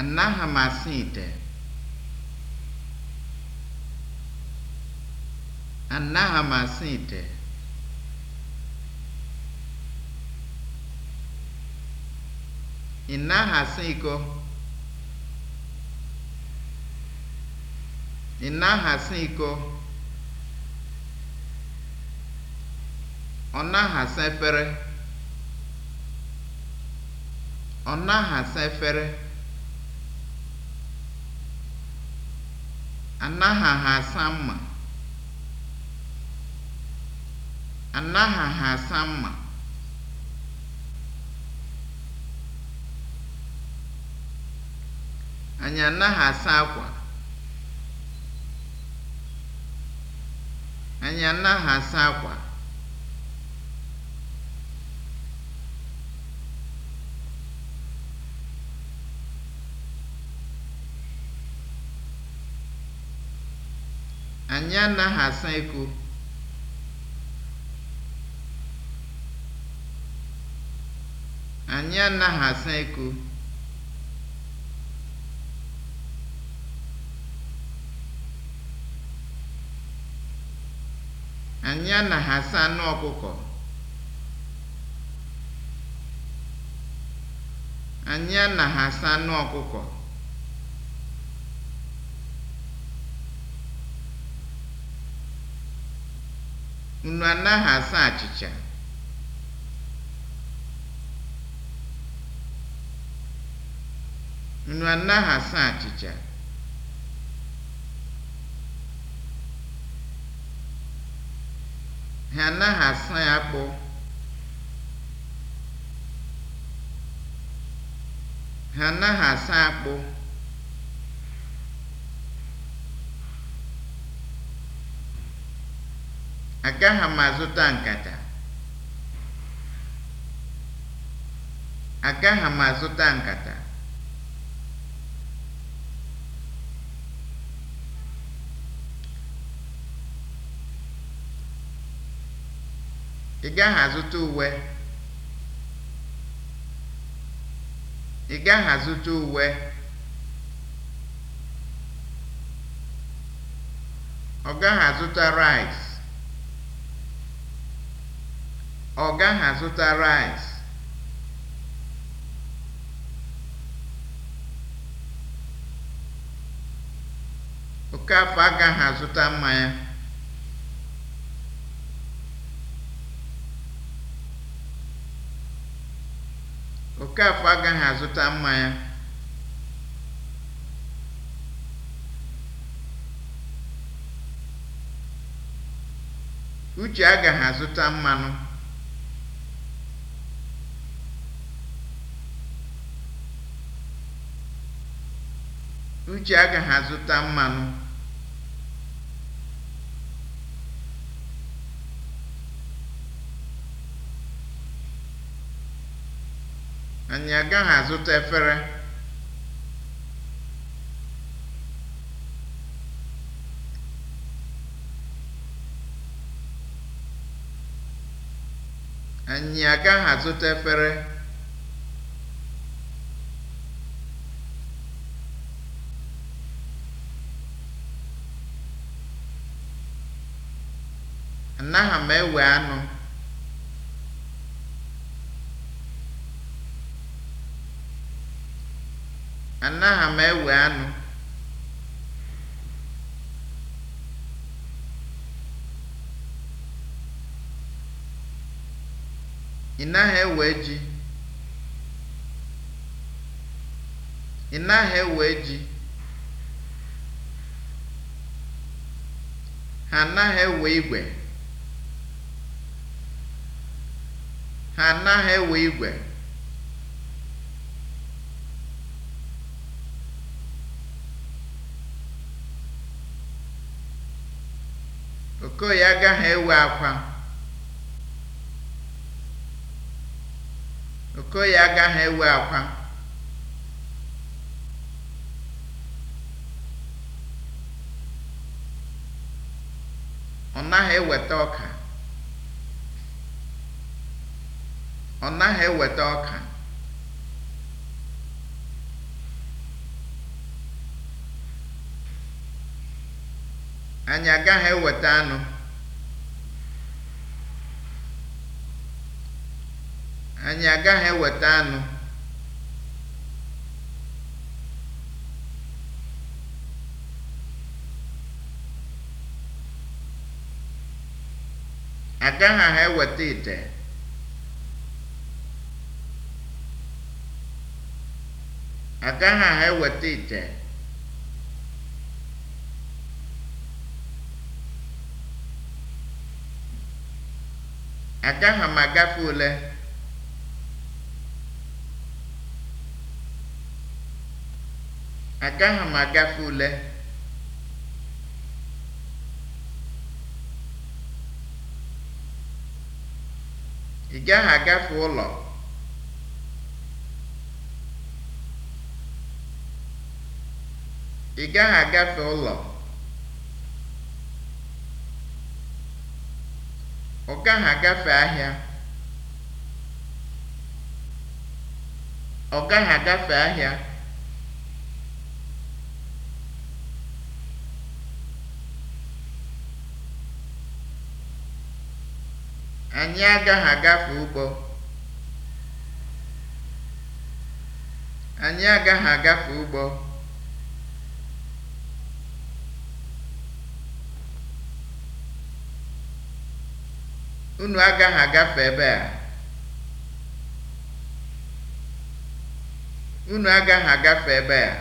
Anaghị m asa ite. Anaghị m asa ite. Ị naghị asa iko. Ị naghị asa iko. Ọ naghị efere. Ọ naghị efere. Anaghị ha mma. Anaghị ha mma. Anyị anaghị asa akwa. Anyị anaghị asa akwa. Anyị anaghị asa eko. Anyị anaghị asa eko. Anyị anaghị asa anụ ọkụkọ. Anyị anaghị asa anụ ọkụkọ. Unu anaghị asa achịcha? Unu anaghị asa achịcha? Ha anaghị asa akpụ. Ha anaghị asa akpụ. Agaghị m azụta nkata. Agaghị m azụta nkata. Ị gaghị azụta uwe. Ị gaghị azụta uwe. Ọ gaghị azụta rice. Ọ gaghị azụta raịs. Okafọ agaghị azụta mmanya. Okafọ agaghị azụta mmanya. Uche agaghị azụta mmanụ. Uche agaghị azụta mmanụ. Anyị agaghị azụta efere. Anyị agaghị azụta efere. Anaghị m ewe anụ. Anaghị m ewe anụ. Ị naghị ewe ji. Ị naghị ewe ji. Ha anaghị ewe igwe. enwe igwe okoye agaghị ewe akwa okoye agaghị ewe akwa ọ naghị eweta ọka ọ naghị eweta ọka anyị agaghị eweta anụ anyị agaghị eweta anụ agaghị ha eweta ite Agaghị aha eweta ite. Agaghị m agafe Agaghị ma Ị gaghị agafe ụlọ. Ị gaghị agafe ụlọ, ọ gaghị agafe ahịa, ọ gaghị agafe ahịa. Anyị agaghị agafe ụgbọ, anyị agaghị agafe ụgbọ. Unu agaghị agafe ebe a. Unu agaghị agafe ebe a.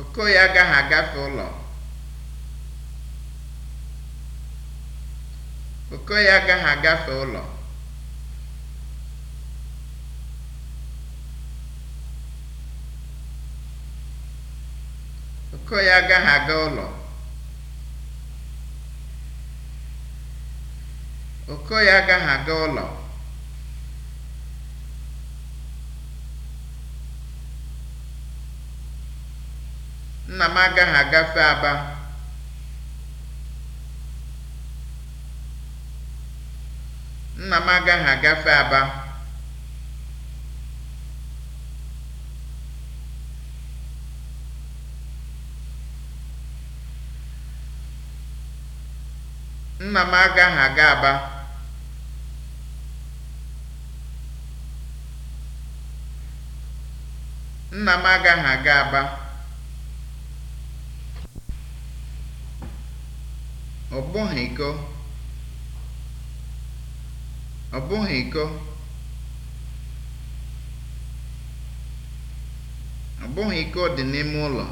Okoye agaghị agafe ụlọ. Okoye agaghị agafe ụlọ. Ọkụkọ ya agaghị aga ụlọ. ụlọ. Nna m agaghị agafe Aba. Nna m agaghị agafe Aba. Nna m agaghị aga Aba. Nna m agaghị aga Aba. Ọ bụghị iko. Ọ bụghị iko. Ọ bụghị iko dị n'ime ụlọ.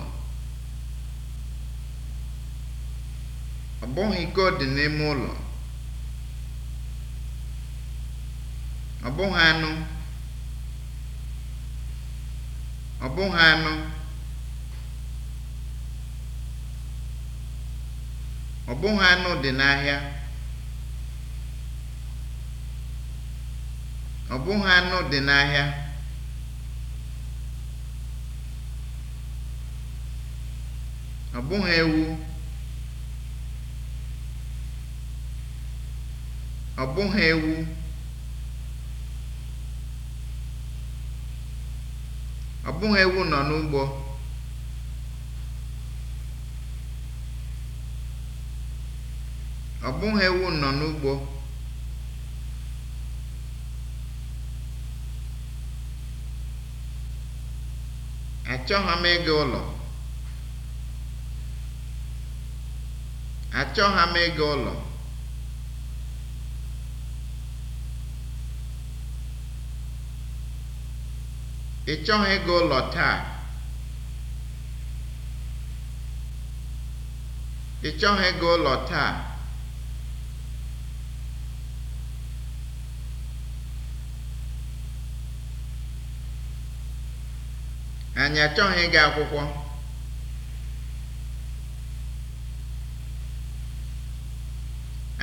ọ bụghị ike dị n'ime ụlọ ọ bụghị anụ ọ bụghị anụ ọ bụghị anụ dị n'ahịa ọ bụghị anụ dị n'ahịa ọ bụghị ewu ọ bụghị ewu ọ bụghị ewu nọ n'ugbo ọ bụghị ewu nọ n'ugbo achọghị m ịga ụlọ achọghị m ịga ụlọ Ị chọghị ịga ụlọ taa? Ị chọghị Anyị achọghị ịga akwụkwọ.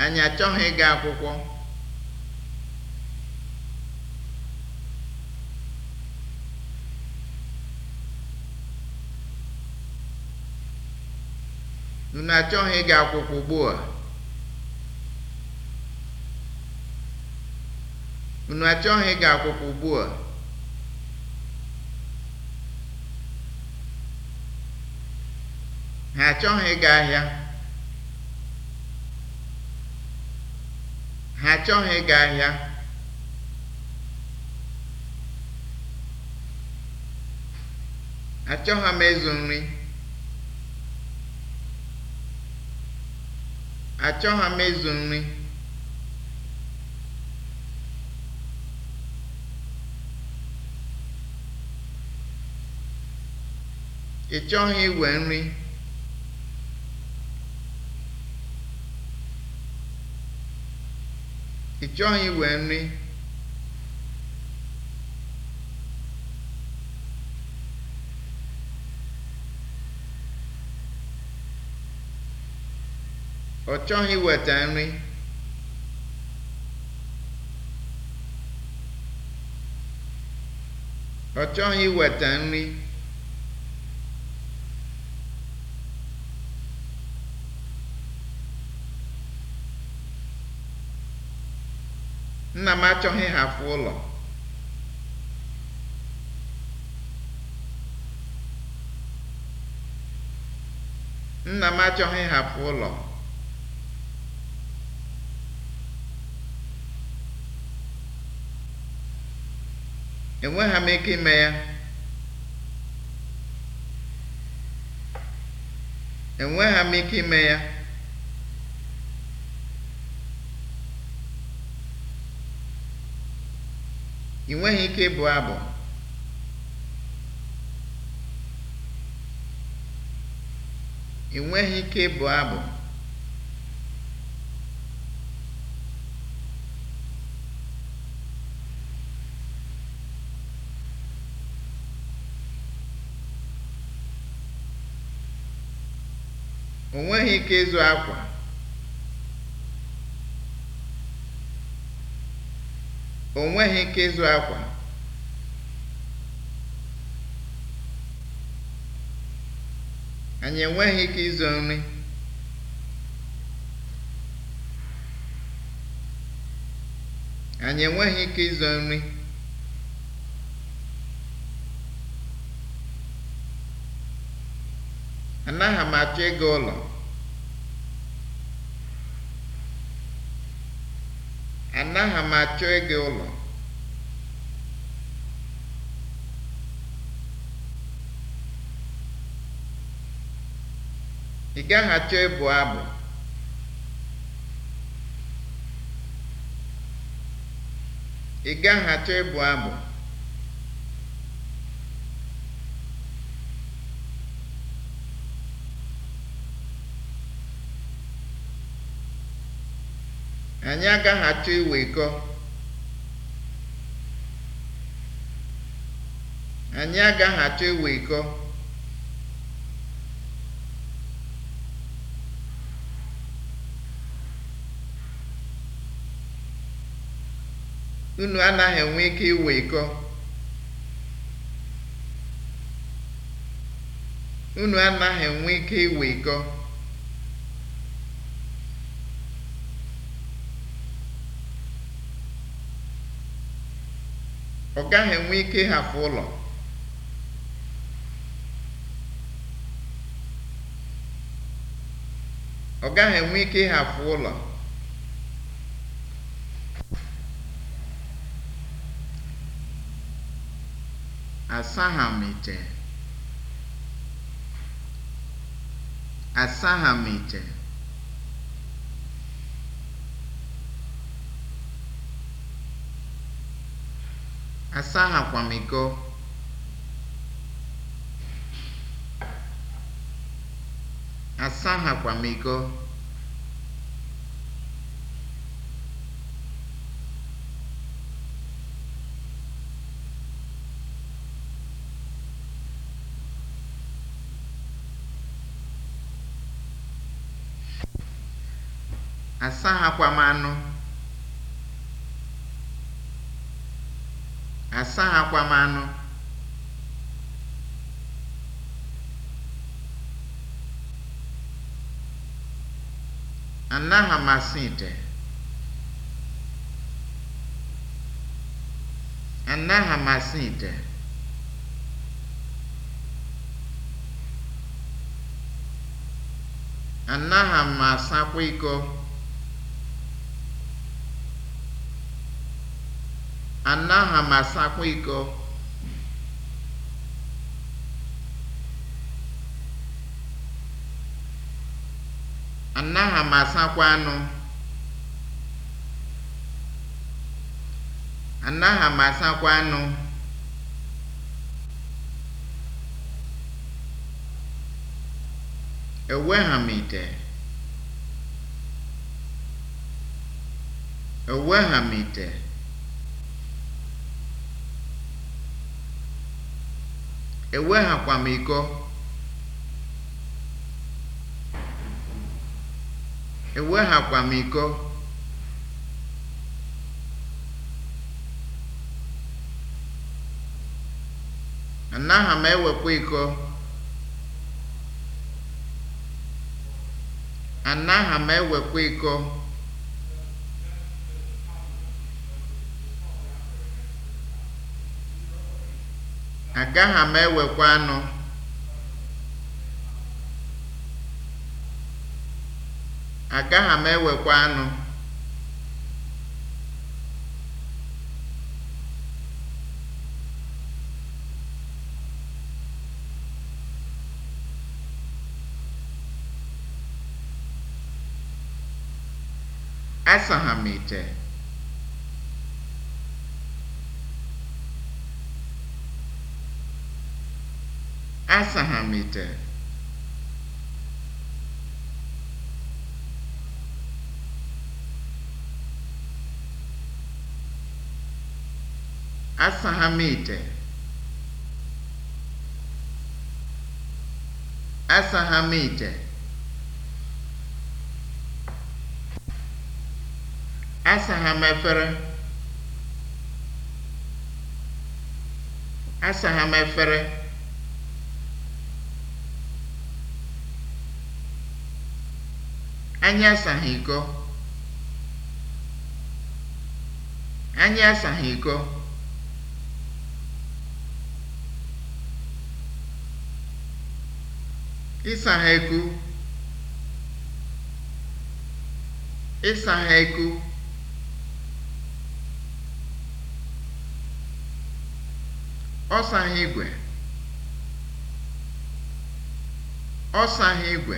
Anyị achọghị ịga akwụkwọ. Unu achọghị ịga akwụkwọ ugbu a? Unu achọghị ịga akwụkwọ ugbu a? Ha achọghị ịga ahịa. Ha achọghị ịga ahịa. Achọghị m ịzụ nri. Achọghị m ịzụ nri. Ị chọghị iwe nri? Ị chọghị iwe nri? ọ chọghị weta nri ọ chọghị weta nri nna m achọghị hafụ ụlọ nna m achọghị hafụ ụlọ enweghị m ike ime ya enweghị m ike ime ya ị nweghị ike ịbụ abụ ị nweghị ike ịbụ abụ O nweghị ike ịzụ akwa. O nweghị ike ịzụ akwa. Anyị enweghị ike ịzụ nri. Anyị enweghị ike ịzụ nri. Anaghị m achọ ịga ụlọ. Anaghị m achọ ịga ụlọ. Ị gaghị achọ ịbụ Ị gaghị achọ ịbụ abụ. Anyị agaghị achọ iwikọ. Anyị anaghị enwe ike iwikọ. Unu ọ gaghị enwe ike ịhapụ ụlọ ọ gaghị enwe ike asaa akwamiko asaa akwamiko asaa akwamanụ Asa m anụ anaghị m asa ite anaghị m asa ite anaghị m asakwa iko anaghị m iko anaghị m asakwa anụ anaghị m asakwa anụ ewegha m m ite ewehakwa m iko ewehakwa m iko anaghị m ewepụ iko anaghị m ewepụ iko Agaghị m ewekwa anụ. Agaghị m ewekwa anụ. Asaha m asahamite asahamite asahamite asahamefere asahamefere Anyị asaghị iko. Anyị asaghị iko. Ịsaghị eku. Ịsaghị eku. Ọ saghị igwe. Ọ saghị igwe.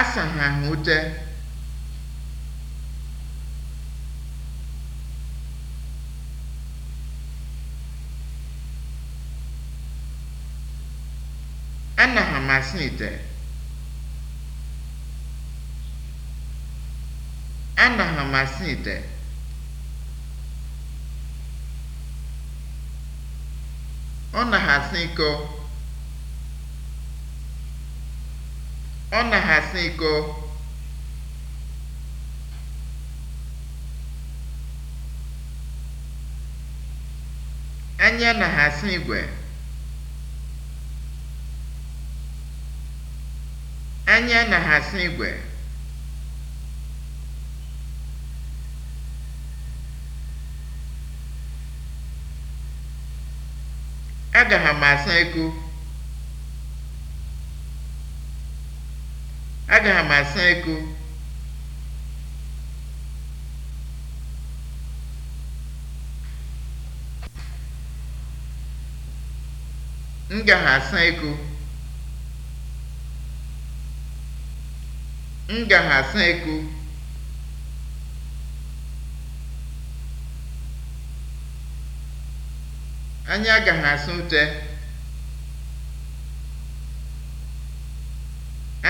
asaghị oche anaghị amasị ite anaghị amasị ite ọ naghị asị iko Ọ na-asa iko. Anya na-asa igwe. Anya na-asa igwe. Agara ma asị iko. Agara m asa ego. M gara asa ego. M gara asa ego. Anyị agaghị asa ute.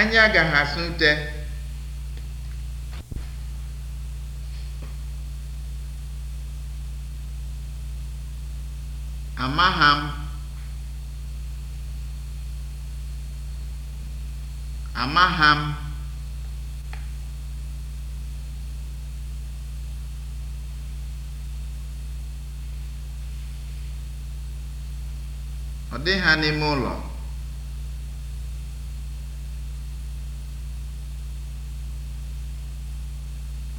Anyị agaghị asụ ute Amaha m. Amaha m. Ọ dịghị ha n'ime ụlọ.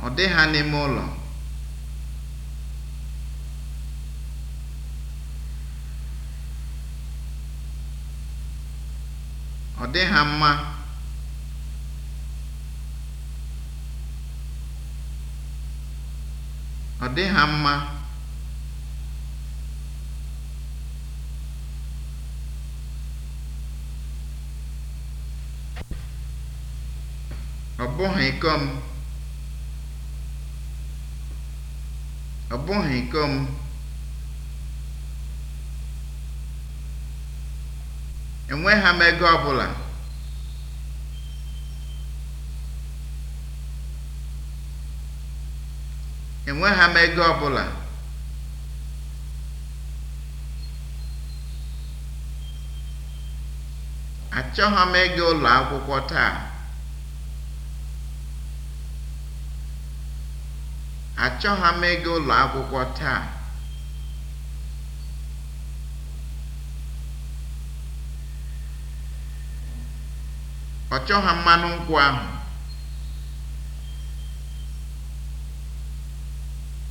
ọ dị ha n'ime ụlọ ọ dị ha mma ọ dị ha mma ọ bụghị ikom ọ bụghị iko m enweghị m ego ọbụla enweghị m ego ọbụla achọghị m ịga ụlọ akwụkwọ taa Achọghị m ịga ụlọ akwụkwọ taa. Ọ chọghị mmanụ nkwụ ahụ.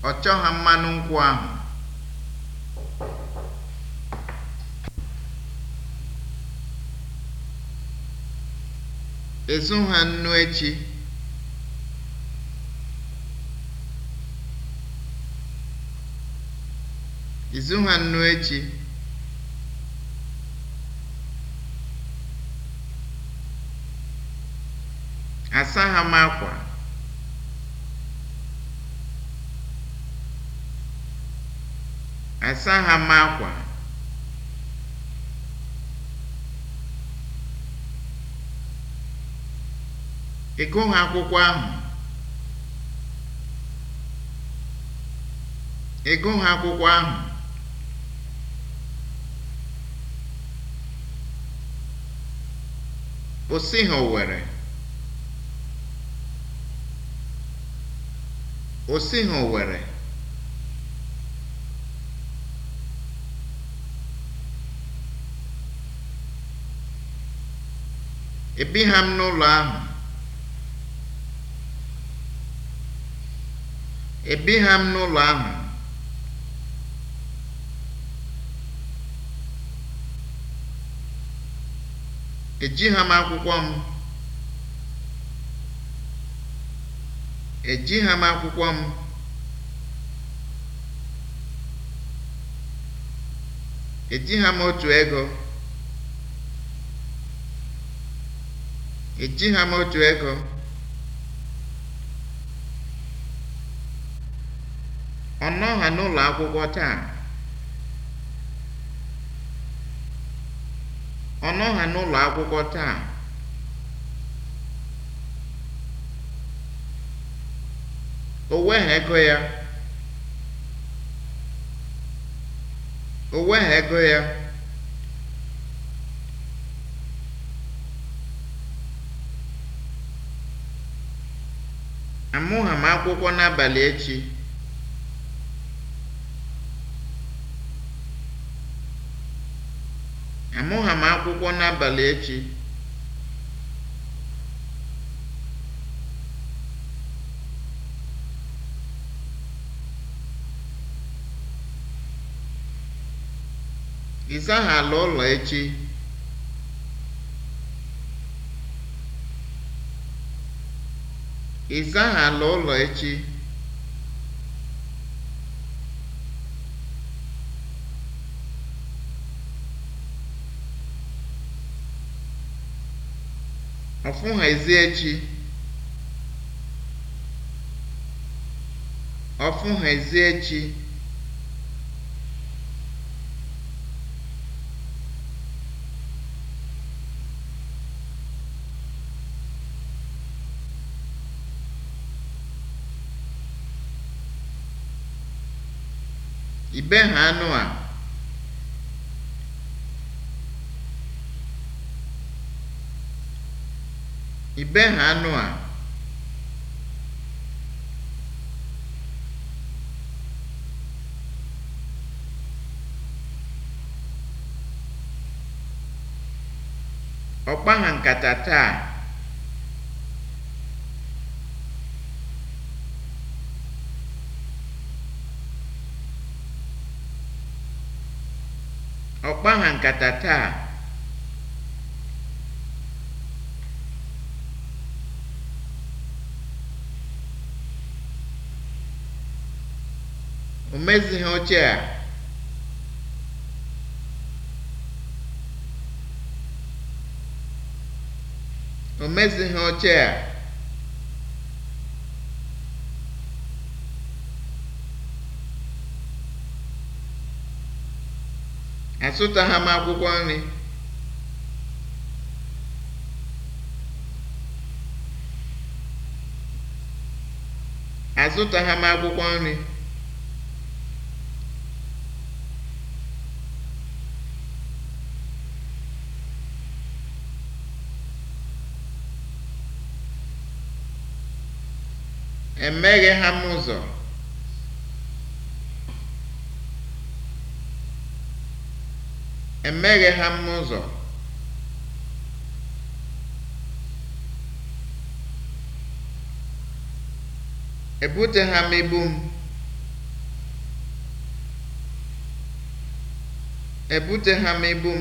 Ọ chọghị mmanụ nkwụ ahụ. Ezu ha nnu echi. izu ha nnu echi? Asa ha m akwa. Asa ha m akwa. Ị gụghị akwụkwọ ahụ? Ị gụghị akwụkwọ ahụ? osi ha Owere. Ebigham m n'ụlọ ahụ. ejighị m akwụkwọ m akwụkwọ m m otu ego m otu ego ọ nọọha n'ụlọ akwụkwọ taa Ọ nọha n'ụlọ akwụkwọ taa. O weghị ego ya. O ego ya. Amụha m akwụkwọ n'abalị echi. Amụha akwụkwọ n'abalị echi. Ị ala ụlọ ụlọ echi? ọ̀fụhèziechi ọ̀fụhèziechi ibe ha anụ a I ha anụ a? Ọ nkata taa? nkata taa? O mezighị oche a. O mezighị oche a. Azụtaghị m akwụkwọ nri. Azụtaghị m akwụkwọ nri. Emeghe ha m ụzọ. Emeghe ha m ụzọ. ha m ibu m. Ebuteha m ibu m.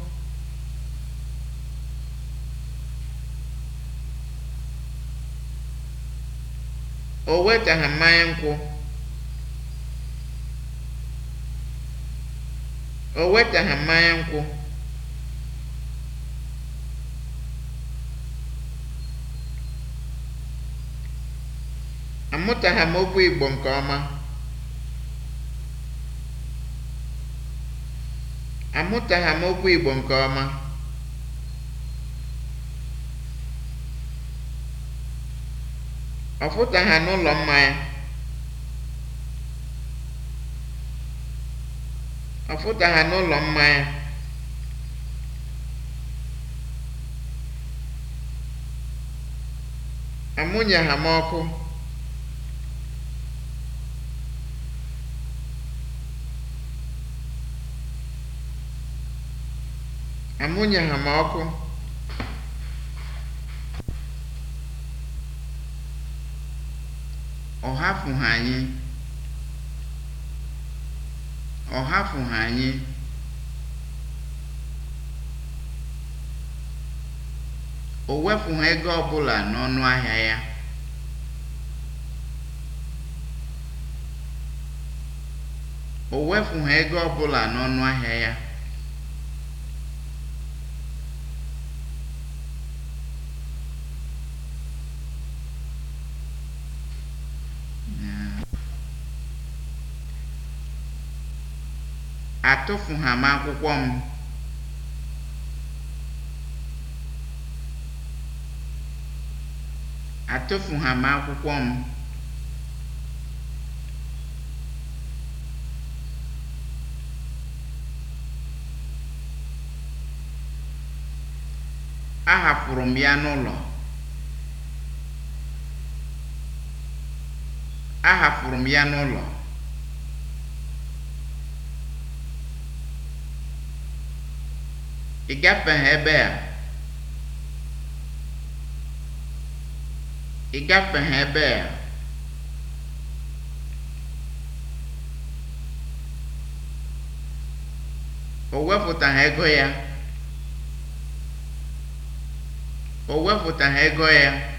o wetaghị mmanya nkwụ o wetaghị nkwụ amụtaghị m okwu Igbo Igbo nke ọma ọ ha n'ụlọ mmanya ọ ha n'ụlọ mmanya amụnye ha m ọkụ amụnye ha m ọkụ ọ anyị ọ anyị o wepụghị ego ọbụla n'ọnụ ego ọbụla n'ọnụ ahịa ya atụfugham akwụkwọ m. atụfugham akwụkwọ m. ahapụrụ m ya n'ụlọ ahapụrụ m ya n'ụlọ ị gafeghị ebe a ebe o ego ya o ego ya